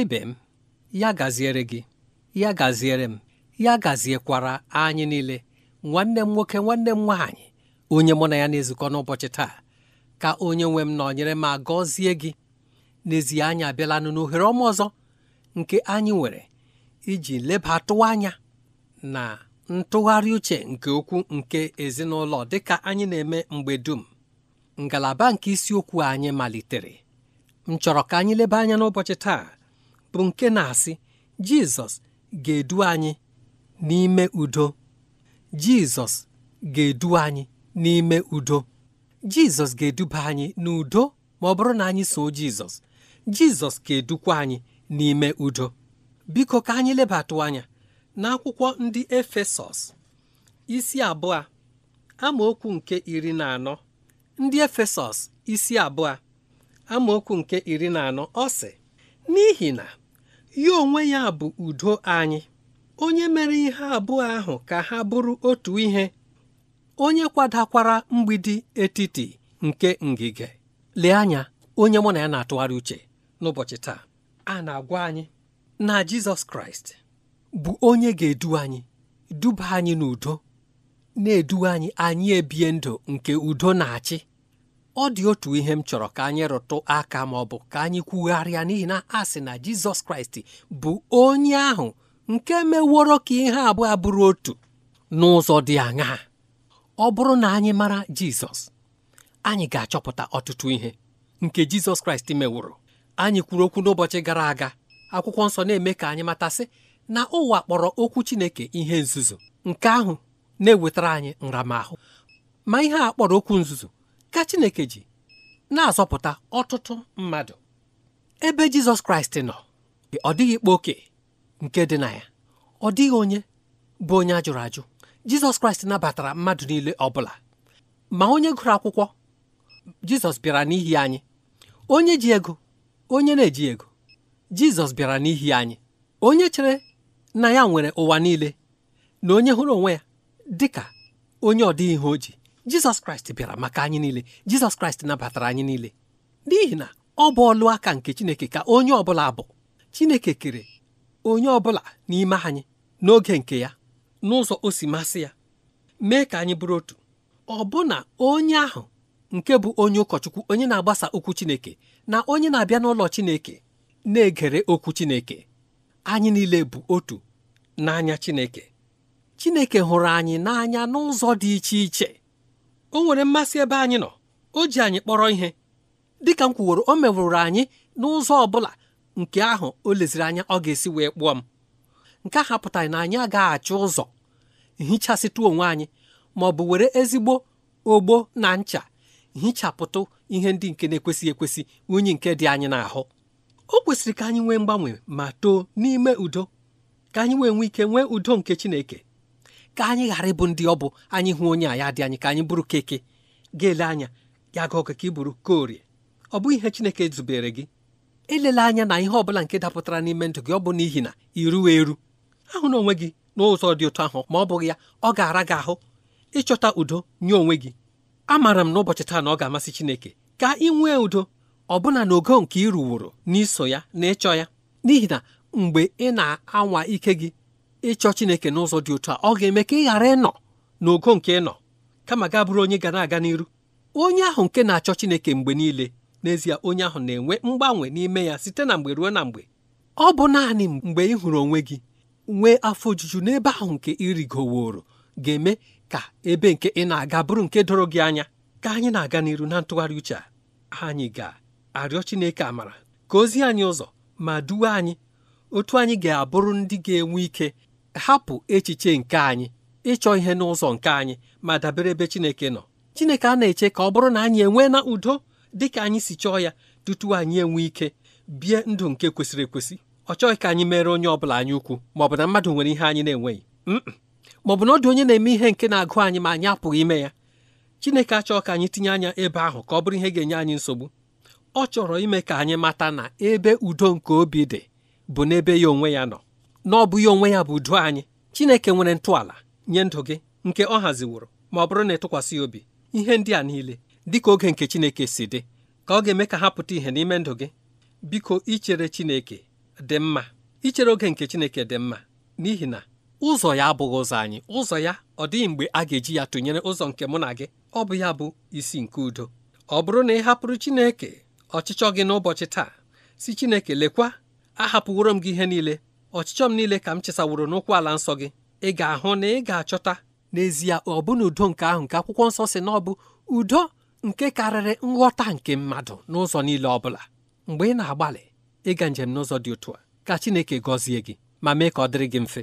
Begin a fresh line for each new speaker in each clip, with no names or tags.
ebe ibe m ya gaziere gị ya gaziere m ya gaziekwara anyị niile nwanne m nwoke nwanne m nwaanyị onye mụ na ya na-ezukọ n'ụbọchị taa ka onye nwe m nọnyere m agọzie gị n'ezie anyị abịalanụ n'ohere ọma ọzọ nke anyị nwere iji lebatụ anya na ntụgharị uche nke okwu nke ezinụlọ dịka anyị na-eme mgbe dum ngalaba nke isiokwu anyị malitere m chọrọ ka anyị leba anya n'ụbọchị taa bụ nke na-asị Jizọs ga-edu anyị n'ime udo Jizọs ga-edu anyị n'ime udo Jizọs ga-eduba anyị n'udo ma ọ bụrụ na anyị soo Jizọs Jizọs ga-edukwa anyị n'ime udo biko ka anyị lebatụ anya n'akwụkwọ ndị Efesọs isi abụọ amaokwu nke iri na anọ ndị Efesọs isi abụọ amaokwu nke iri na anọ ọ sị n'ihi na ya onwe ya bụ udo anyị onye mere ihe abụọ ahụ ka ha bụrụ otu ihe onye kwadakwara mgbidi etiti nke ngige lee anya onye mụ na ya na-atụgharị uche n'ụbọchị taa a na-agwa anyị na Jizọs Kraịst bụ onye ga-edu anyị duba anyị n'udo na-edu anyị anyị ebie ndụ nke udo na-achị ọ dị otu ihe m chọrọ ka anyị rụtụ aka ma ọ bụ ka anyị kwugharịa n'ihi na a sị na Jizọs Kraịst bụ onye ahụ nke meworo ka ihe abụọ bụrụ otu n'ụzọ dị aṅaa ọ bụrụ na anyị mara Jizọs anyị ga-achọpụta ọtụtụ ihe nke Jizọs Kraịst meworo anyị kwuru okwu n'ụbọchị gara aga akwụkwọ nsọ na-eme ka anyị matasị na ụwa kpọrọ okwu Chineke ihe nzuzo nke ahụ na-ewetara anyị nramahụ ma ihe a kpọrọ okwu nzuzo ka Chineke ji na-azọpụta ọtụtụ mmadụ ebe Jizọs Kraịst nọ ọ dịghị ikpe oke nke dị na ya ọ dịghị onye bụ onye a jụrụ ajụ Jizọs Kraịst nabatara mmadụ niile ọ bụla ma onye gụrụ akwụkwọ Jizọs bịara n'ihi anyị onye ji ego onye na-eji ego Jizọs bịara n'ihi anyị onye chere na ya nwere ụwa niile na onye hụrụ onwe ya dị ka onye ọ dịghị ihe o ji jizọs kraịst bịara maka anyị niile jizọs kraịst nabatara anyị niile n'ihi na ọ bụ ọlụ aka nke chineke ka onye ọbụla bụ chineke kere onye ọbụla n'ime anyị n'oge nke ya n'ụzọ o si masị ya mee ka anyị bụrụ otu ọ bụ na onye ahụ nke bụ onye ụkọchukwu onye na-agbasa okwu chineke na onye na-abịa n'ụlọ chineke na-egere okwu chineke anyị niile bụ otu n'anya chineke chineke hụrụ anyị n'anya n'ụzọ dị iche iche o nwere mmasị ebe anyị nọ o ji anyị kpọrọ ihe dịka m kwuworo o mewụrụ anyị n'ụzọ ọ bụla nke ahụ o leziri anya ọ ga-esi wee kpụọ m nke ahụ apụtaghị na anyị agaghị achọ ụzọ hichasịtụ onwe anyị ma ọ bụ were ezigbo ogbo na ncha hichapụtụ ihe ndị nke na-ekwesịghị ekwesị unyi nke dị anyị n'ahụ o kwesịrị ka anyị nwee mgbanwe ma too n'ime udo ka anyị wee nwee ike nwee udo nke Chineke ka anyị ghara ịbụ ndị ọ bụ anyị hụ onye a ya dị anyị ka anyị bụrụ keke ga-ele anya ya ga oke ka ị bụrụ korie ọ bụghị ihe Chineke zubere gị elela anya na ihe ọbụla nke dapụtara n'ime ndụ gị ọ bụ n'ihi na iruwa eru ahụ na onwe gị n'ụzọ dị otu ahụ ma ọ bụghị ya ọ ga-ara gị ahụ ịchọta udo nye onwe gị amaara m n'ụbọchị taa na ọ ga-amasị Chineke ka ị nwee udo ọbụna n'ogo nke ị ruworo n'iso ya na ịchọ ya n'ihi na mgbe ị na-anwa ike gị ịchọ chineke n'ụzọ dị otu a ọ ga-eme ka ị ghara ịnọ n'ogo nke ịnọ kama gaa bụrụ onye ga na-aga n'iru onye ahụ nke na-achọ chineke mgbe niile n'ezie onye ahụ na-enwe mgbanwe n'ime ya site na mgbe ruo na mgbe ọ bụ naanị mgbe ị hụrụ onwe gị nwee afọ ojuju n'ebe ahụ nke ịrigoworo ga-eme ka ebe nke ị na-aga bụrụ nke doro gị anya ka anyị na-aga n'iru na ntụgharị uche a anyị ga-arịọ Chineke amara ka ozi anyị ụzọ ma duwe anyị otu anyị ga-abụrụ ndị ga-enwe ike hapụ echiche nke anyị ịchọ ihe n'ụzọ nke anyị ma dabere ebe Chineke nọ Chineke a na-eche ka ọ bụrụ na anyị enwee na udo dị ka anyị si chọọ ya tutu anyị enwee ike bie ndụ nke kwesịrị ekwesị ọ chọghị ka anyị mere onye ọ bụla anyị ukwu ma ọ bụ na mmadụ nwere ihe anyị na-enweghị ma ọ bụ na ọ dị onye na-eme ihe nke na-agụ anyị ma anyị apụghị ime ya Chineke achọọ ka anyị tinye anya ebe ahụ ka ọ bụrụ ihe ga-enye anyị nsogbu ọ chọrọ ime ka anyị mata na ebe udo nke obi dị bụ n'ebe ya onwe ya nọ na ọ bụghị onwe ya bụ udo anyị Chineke nwere ntọala nye ndụ gị nke ọ haziworo ma ọ bụrụ na ịtụkwasị obi ihe ndị a niile dịka oge nke Chineke si dị ka ọ ga-eme ka ha pụta ihe n'ime ndụ gị biko ichere Chineke dị mma ichere oge nke Chineke dị mma n'ihi na ụzọ ya abụghị ụzọ anyị ụzọ ya ọ dịghị mgbe a ga-eji ya tụnyere ụzọ nke mụ na gị ọ bụ ya bụ isi nke udo ọ bụrụ na ị hapụrụ Chineke ọchịchọ gị n'ụbọchị taa si Chineke lekwa ahapụworo m gị ihe niile ọchịchọ m niile ka m chesaworo n'ụkwụ ala nsọ gị ị ga-ahụ na ị ga-achọta n'ezie ọ bụ udo nke ahụ nke akwụkwọ nsọ si na ọ bụ udo nke karịrị nghọta nke mmadụ n'ụzọ niile ọ bụla mgbe ị na-agbalị ịga njem n'ụzọ dị otu a ka Chineke gọzie gị ma mee ka ọ dịrị gị mfe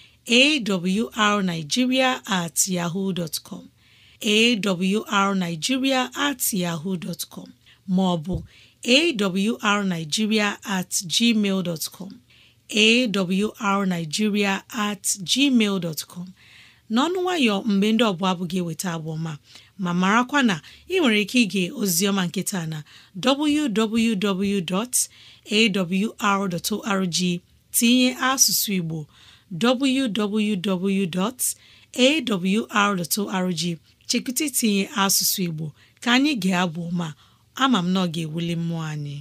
awrnigeria at yahoo dot com awrnigeria at yahoo dot com maọbụ awrnigeria at gmail dot com awrnigeria at gmail dot n'ọnụ nwayọ mgbe ndị ọbụla abụ gị eweta abụọma ma marakwa na ị nwere ike ige ozioma nkịta na www.awr.org tinye asụsụ Igbo www.awr.org chekụta itinye asụsụ Igbo ka anyị ga-abụ ma ama m na ọ ga-ewuli mmụọ anyị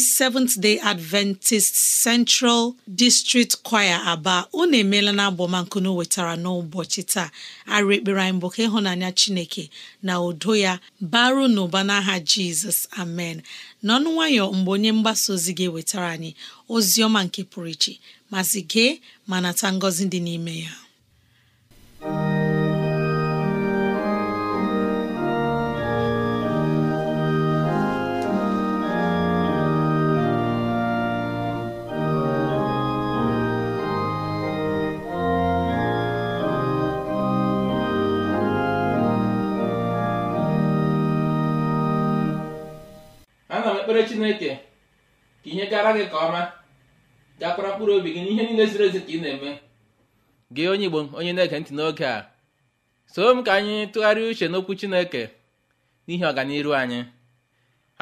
ndị Seventh Day Adventist Central District Choir Aba unu emeela na abọmankunu wetara n'ụbọchị taa arụ ekpere anyị bụ ka ịhụnanya Chineke na udo ya baru n'ụba n'aha Jizọs amen n'ọnụ nwayọ mgbe onye mgbasa ozi gị wetara anyị ozi ọma nke pụrụ iche masị gee ma nata ngọzi dị n'ime ya
chineke ka ihe gara gị ka ọma gakwara mkpụrụ obi gị n'ihe niile ziri ezi ka ị na-eme gị onye igbo onye na-ege ntị n'oge a soo m ka anyị tụgharịa uche n'okwu chineke n'ihi ọganiru anyị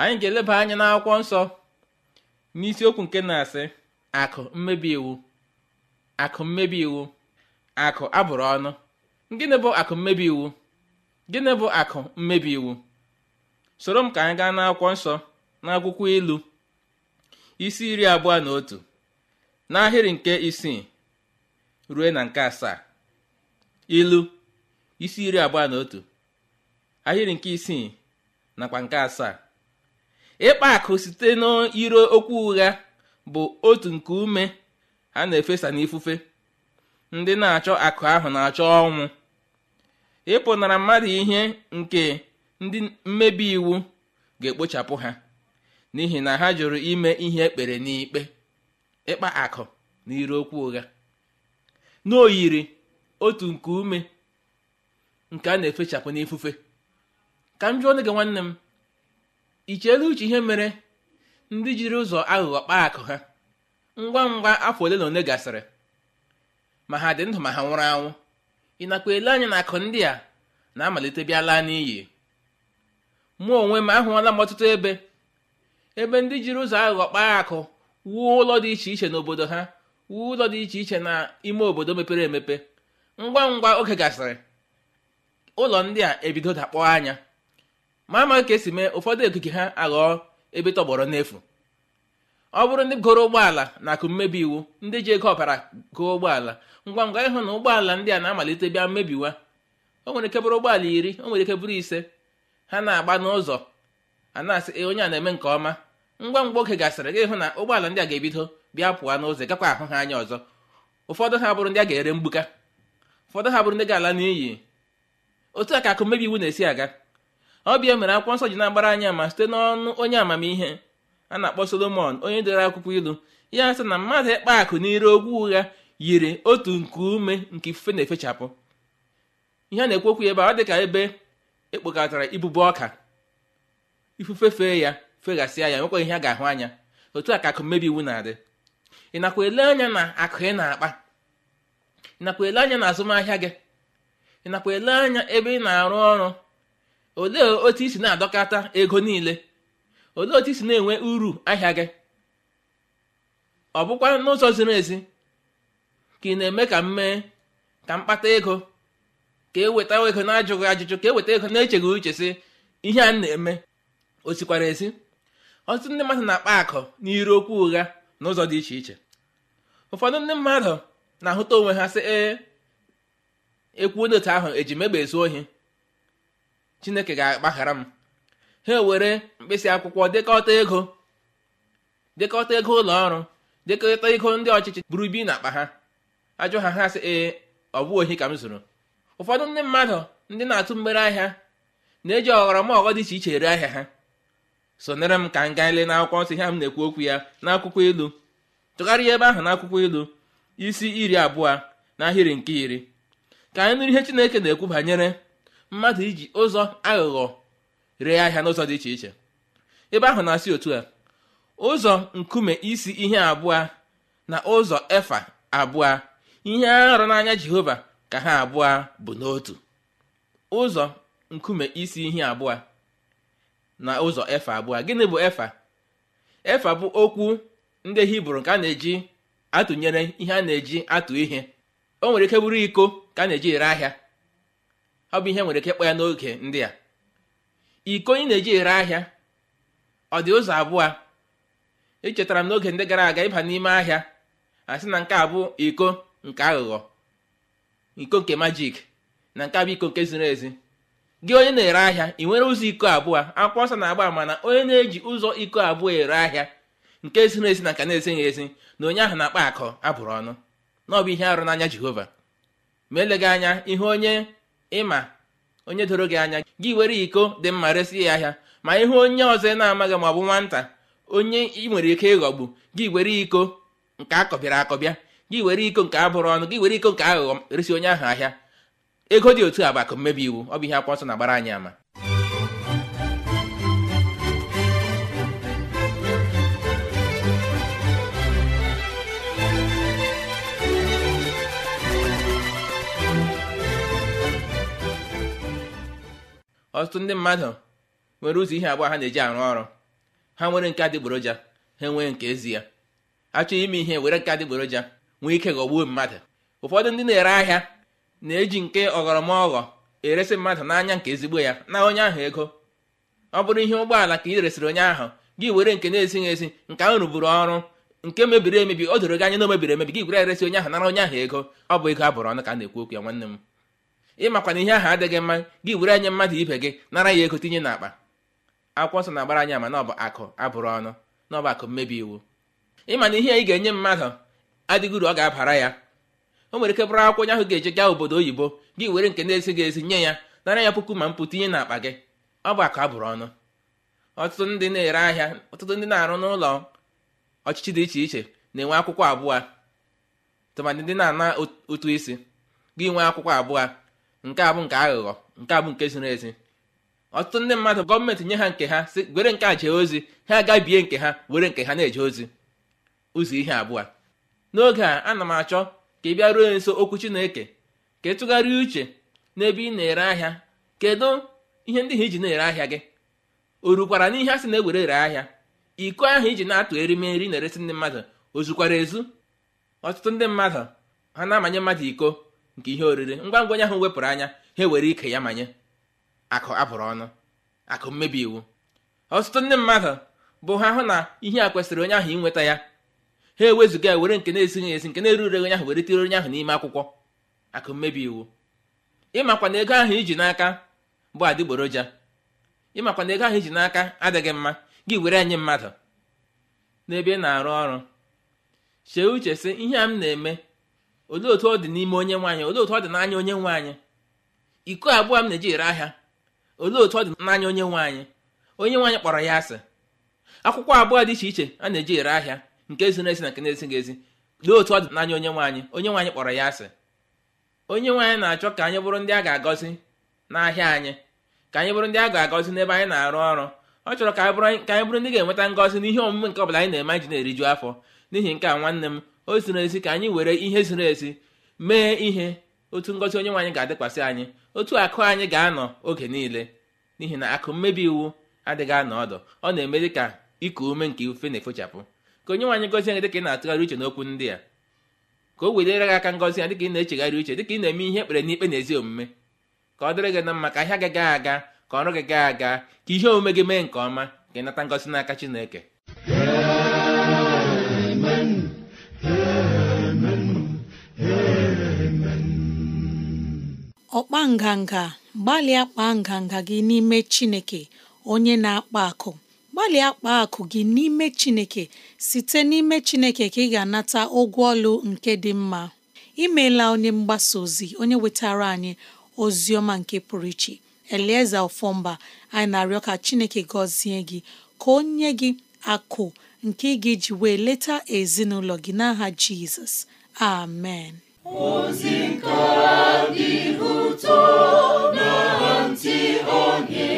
anyị ga-eleba anya n'akwụkwọ nsọ n'isiokwu nke na-asị akụ mmebi iwu akụ mmebi iwu akụ abụrụ ọnụ gịnị bụ akụ mmebi iwu gịnị bụ akụ mmebi iwu soro m ka anyị gaa n'akwụkwọ nsọ n'akwụkwọ ilu isi iri abụọ na otu n'ahịrị nke isii ruo na nke asaa ilu isi iri abụọ na otu ahịrị nke isii nakwa nke asaa ịkpa akụ site n'iro okwu ụgha bụ otu nke ume a na-efesa n'ifufe ndị na-achọ akụ ahụ na-achọ ọnwụ ịpụnara mmadụ ihe nke ndị mmebi iwu ga-ekpochapụ ha n'ihi na ha jụrụ ime ihe ekpere n'ikpe ịkpa akụ na ire okwu ụgha n'oyiri otu nke ume nke a na-efechapụ n'ifufe ka m jụọ onye gị nwanne m i uche ihe mere ndị jiri ụzọ aghụghọ kpaa akụ ha ngwa ngwa afọ ole na ole gasịrị ma ha dị ndụ ma ha nwụrụ anwụ ị ele anya na akụ ndị a na-amalite bịa n'iyi mụ onwe m ahụọla m ọtụtụ ebe ebe ndị jiri ụzọ aghụghọ kpaa akụ wuo ụlọ dị iche iche n'obodo ha wuo ụlọ dị iche iche na ime obodo mepere emepe ngwa ngwa oge gasịrị ụlọ ndị a ebido dakpọọ anya ma ama ka esi mee ụfọdụ okike ha aghọọ ebe tọgbọrọ n'efu ọ bụrụ ndị goro ụgbọala na akụ mmebi iwu ndị ji ego ọbara goo ụgbọala ngwa ngwa ịhụ na ụgbọala ndị a na-amalite bịa mmebiwa o nwere ike bụrụ ụgbọala iri o nwere ike bụrụ ise ha na-agba n'ụzọ a na-asị onye a na-eme nke ọma ngwa ngwa oge gasịrị gị hụ na ụgbọala ndị a ga-ebido bịa pụọ n'ụzọ gakwa ahụ ha anya ọzọ ụfọdụ ha bụrụ ndị a ga-ere mgbuka ụfọdụ ha bụrụ ndị ga-ala n'iyi otu a ka akụ mmebi iwu na-esi aga ọ bịa mere akwụkwọ nsọ ji na-agbara anya ma site n'ọnụ onye amamihe a na-akpọ solomon onye dere akwụkwọ ilu ya sị na mmadụ ịkpa akụ n'ire ogwu ụgha yiri otu nke ume nke ifufe na-efechapụ ihe a na-ekwu okwu ya ebe ọ dị ka ebe ekpokọtara ibubo ọka ifufe fee ya feghasịa ya nwekwa ihe a ga-ahụ anya otu a ka akụ mmebi iwu na-adị ị nakwa ele anya na akụ ị na-akpa ị nakwa ele anya na azụmahịa gị ị nakwa ele anya ebe ị na-arụ ọrụ olee otu isi na adọkọta ego niile olee otu isi na-enwe uru ahịa gị ọ bụkwa n'ụzọ ziri ezi ka ị na-eme ka m mee ka m ego ka e weta ego na-ajụghị ajụjụ ka e weta ego na-echeghị uche sị ihe a na-eme o sikwara ezi ọtụtụ ndị mmadụ na-akpa akụ n'iru okwu ụgha n'ụzọ dị iche iche ụfọdụ ndị mmadụ na-ahụta onwe ha sị ee ekwu onye ahụ eji megbe ezu ohi chineke ga-agbaghara m ha ewere mkpịsị akwụkwọ dekọta ego ego ụlọ ọrụ dịkọta ego ndị ọchịchị buru bi n'akpa ha ajụ ha ha sị ee ọ bụ ohi ka m zụrụ ụfọdụ ndị mmadụ ndị na-atụ mgbere ahịa na-eji ọghọrọ ọghọ dị iche iche ere ahịa ha sonere m ka m gaa ile n'akwụkwọ nsọ ihe m na-ekwu okwu ya n'akwụkwọ ilu tụgharịa ebe ahụ n'akwụkwọ ilu isi iri abụọ n'ahịrị nke iri ka anyị nụrụ ihe chineke na-ekwu banyere mmadụ iji ụzọ aghụghọ ree ahịa n'ụzọ dị iche iche ebe ahụ na-asị otu a ụzọ nkume isi ihe abụọ na ụzọ efa abụọ ihe arụ n'anya jehova ka ha abụọ bụ n'otu ụzọ nkume isi ihe abụọ na ụzọ efa abụọ gịnị bụ efa efa bụ okwu ndị hibru nke a na-eji atụnyere ihe a na-eji atụ ihe o nwere ike bụrụ iko ka a na-eji ere ahịa ọ bụ ihe nwere ike ịkpọ ya n'oge ndị a iko ị na-eji ere ahịa ọ dị ụzọ abụọ ichetara m n'oge ndị gara aga ịba n'ime ahịa a sị na nke a bụ iko nke aghụghọ iko nke majik na nke a bụ iko nke ziri ezi gị onye na-ere ahịa ị nwere ụzọ iko abụọ akwụkwọ ọsọ na-agba ama na onye na-eji ụzọ iko abụọ ere ahịa nke ziri ezi na ka na-ezighị ezi na onye ahụ na-akpa akọ abụrụ ọnụ na ọ bụ ihe arụ n'anya jehova ma gị anya ihe onye ịma onye doro gị anya gị were iko dị mma resị ya ahịa ma ihe onye ọzọ na-amaghị ma ọ bụ nwata onye ị nwere ike ịghọgbu gị were iko nke akọbịara akọbịa gị were iko nke abụrụ ọnụ gị were iko nke aghụghọ resi onye ahụ ahịa ego dị otu a bụ akụ mmebi iwu ọ bụ ihe akwụkwọ nsọ na-agbara anyị ama ọtụtụ ndị mmadụ nwere ụzọ ihe abụọ ha na-eji arụ ọrụ ha nwere nke adịgboroja ha enwee nke ezi ya achọ ime ihe were nke adịgboroja nwee ike ghọgbuo mmadụ ụfọdụ ndị na-ere ahịa na-eji nke ọghọrọmaghọ eresi mmadụ n'anya nke ezigbo ya na onye ahụ ego ọ bụrụ ihe ụgbọala ka ị resịrị onye ahụ gị were nke na-esighị esi nke ahụ rụburu ọrụ nke mebiri emebi o doro gị anya na o mebiri emebi gị were eresi onye ahụ nara onye ahụ ego ọ bụ ego abụrụ ọnụ ka a na-ekwu okwu ya nwanne m ịmakwana na ihe ahụ adịghị mma gị were anya mmadụ ibe gị nara ya ego tinye n'akpa akwụkwọ nsọ na-agbara anya ma na ọ bụ akụ abụrụ ọnụ na ọ bụ akụ mmebi iwu ịma na ihe ị ga-enye mmadụ adịghị uru ọ ga-abara ya o nwere ike bụrụ akwụkwọ onye ahụ ga-eje gaa obodo oyibo gị were nke na-esi gị nye ya nara ya puku ma ihe na-akpa gị ọ bụ akụ a bụrụ ọnụ ọtụtụ ndị na-ere ahịa ọtụtụ ndị na-arụ n'ụlọ ọchịchị dị iche iche na-enwe akwụkwọ abụọ tụmadị ndị na-ana otu isi gị nwee akwụkwọ abụọ nke a bụ nke aghụghọ nke a bụ nke ziri ezi ọtụtụ ndị mmadụ gọọmenti nye ha nke ha si were nke a jee ozi ha agabie nke ha were nke ha na-eje ozi ụzọ ihe abụọ n'oge a ana m achọ ka ị ruo nso okwu chineke ka tụgharịa uche n'ebe ị na-ere ahịa kedu ihe ndị ha iji na-ere ahịa gị o rukwara n'ihe a sị na-ewere ere ahịa iko ahụ iji na-atụ erimeri na-eresi ndị mmadụ ozukwara ezu ọtụtụ ndị mmadụ ha na-amanye mmadụ iko nke ihe oriri ngwa ngwa onye ahụ wepụrụ anya ha ewere ike ya manye akụ abụrụ ọnụ akụ mmebi iwu ọtụtụ ndị mmadụ bụ ha hụ na ihe a kwesịrị onye ahụ inweta ya ha ewezụga ya were nke na-esighị esi nke na-eruregh onye ahụ were tiri onye ahụ n'ime akwụkwọ akụ mmebi iwu ịmakwa ego ahụ iji n'aka bụ adịgboroja ịmakwa na ego ahụ iji n'aka adịghị mma gị were anyị mmadụ n'ebe ị na-arụ ọrụ chee uche sị ihe a m na-eme olee otu ọ dị n'ime onye nwaanyị olee otu ọ dị n'anya onye nwaanyị iko abụọ m na-eji ere ahịa olee otu ọ dị n'anya onye nwaanyị onye nwaanyị kpọrọ ya asị akwụkwọ abụọ dị iche iche a na-eji ere ahịa nke ziri ezi na nke na-ezighị ezi lee otu ọ dị n'anya onye nwaanyị onye nwaanyị kpọrọ ya asị onye nwaanyị na-achọ ka anyị bụrụ ndị a ga-agọzi n'ahịa anyị ka anyị bụrụ ndị a ga-agọzi n'ebe anyị na-arụ ọrụ ọ chọrọ ka anyị bụrụ ndị ga-enweta ngọzi n'ihe omume nke ọbụla anyị na-eme anyị na-eriju afọ n'ihi nke a nwanne m o ziri ezi ka anyị were ihe ziri ezi mee ihe otu ngọzi onye nwaanyị ga-adịkwasị anyị otu akụ anyị ga-anọ oge niile n'ihi na akụ mmebi iwu adịghị anọ ọdụ ọ na-eme dị ka iku ume nke ife na-efechapụ ka onye nwaanyị gọzie gị dịka ị na-atụgharị uche n'okwu ndị a ka o wedere gị aka ngọzi ya dịka ị na-echegharị uche dịka ị na-eme ihe ekpere n'ikpe na ezi omume ka ọ dịrị gị na mma ka ahịa gị gaa aga ka ọrụ gị gaa aga ka ihe omume gị mee nke ọma ka ị nata ngọzi n'aka Chineke
ọkpa nganga gbalịa kpaa nganga gị n'ime Chineke onye na-akpa akụ gbalịa akpa akụ gị n'ime Chineke site n'ime Chineke ka ị ga-anata ụgwọ ọlụ nke dị mma imeela onye mgbasa ozi onye wetara anyị ozi ọma nke pụrụ iche elieze Ọfọmba anyị na-arịọ ka Chineke gọzie gị ka o nye gị akụ nke ị ga-eji wee leta ezinụlọ gị n'aha Jizọs amen
ozi nke dị ụtọ na ntị onye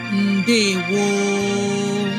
woo!